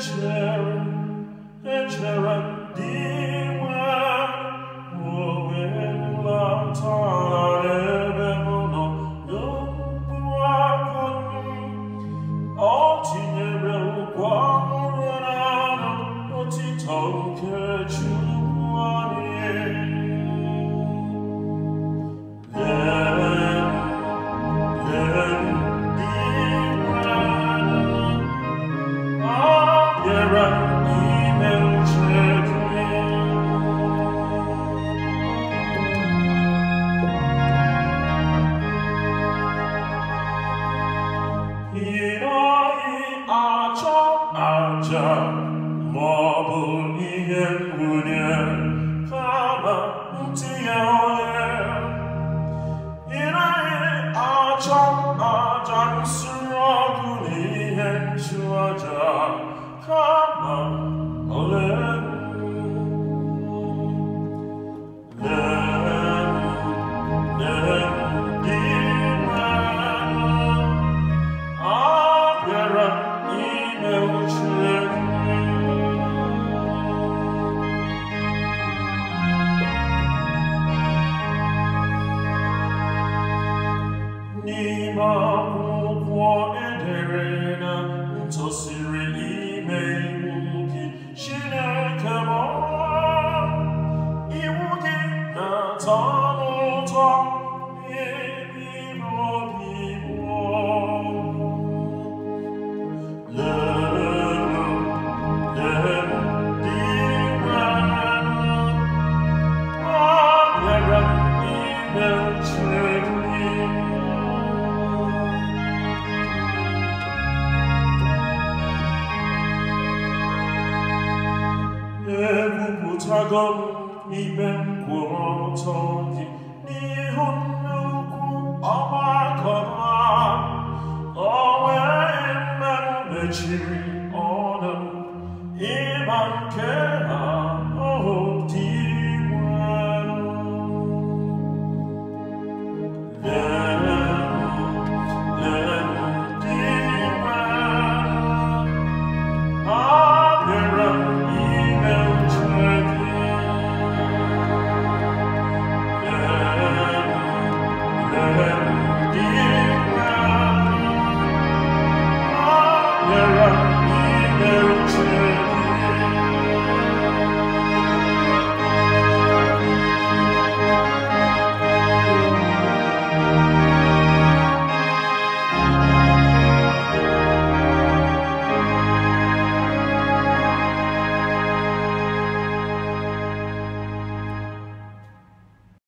judgment. mangia mobul in unia fama utiae in ae agiam Maa moukoua e de reina Muntos i reinei mei mouki I wuki e ta i ibem kwom ọtọdị n'ihu nnukwu ọgbakọ ma o nwere mmanụ mechiri ọnụ ịba nke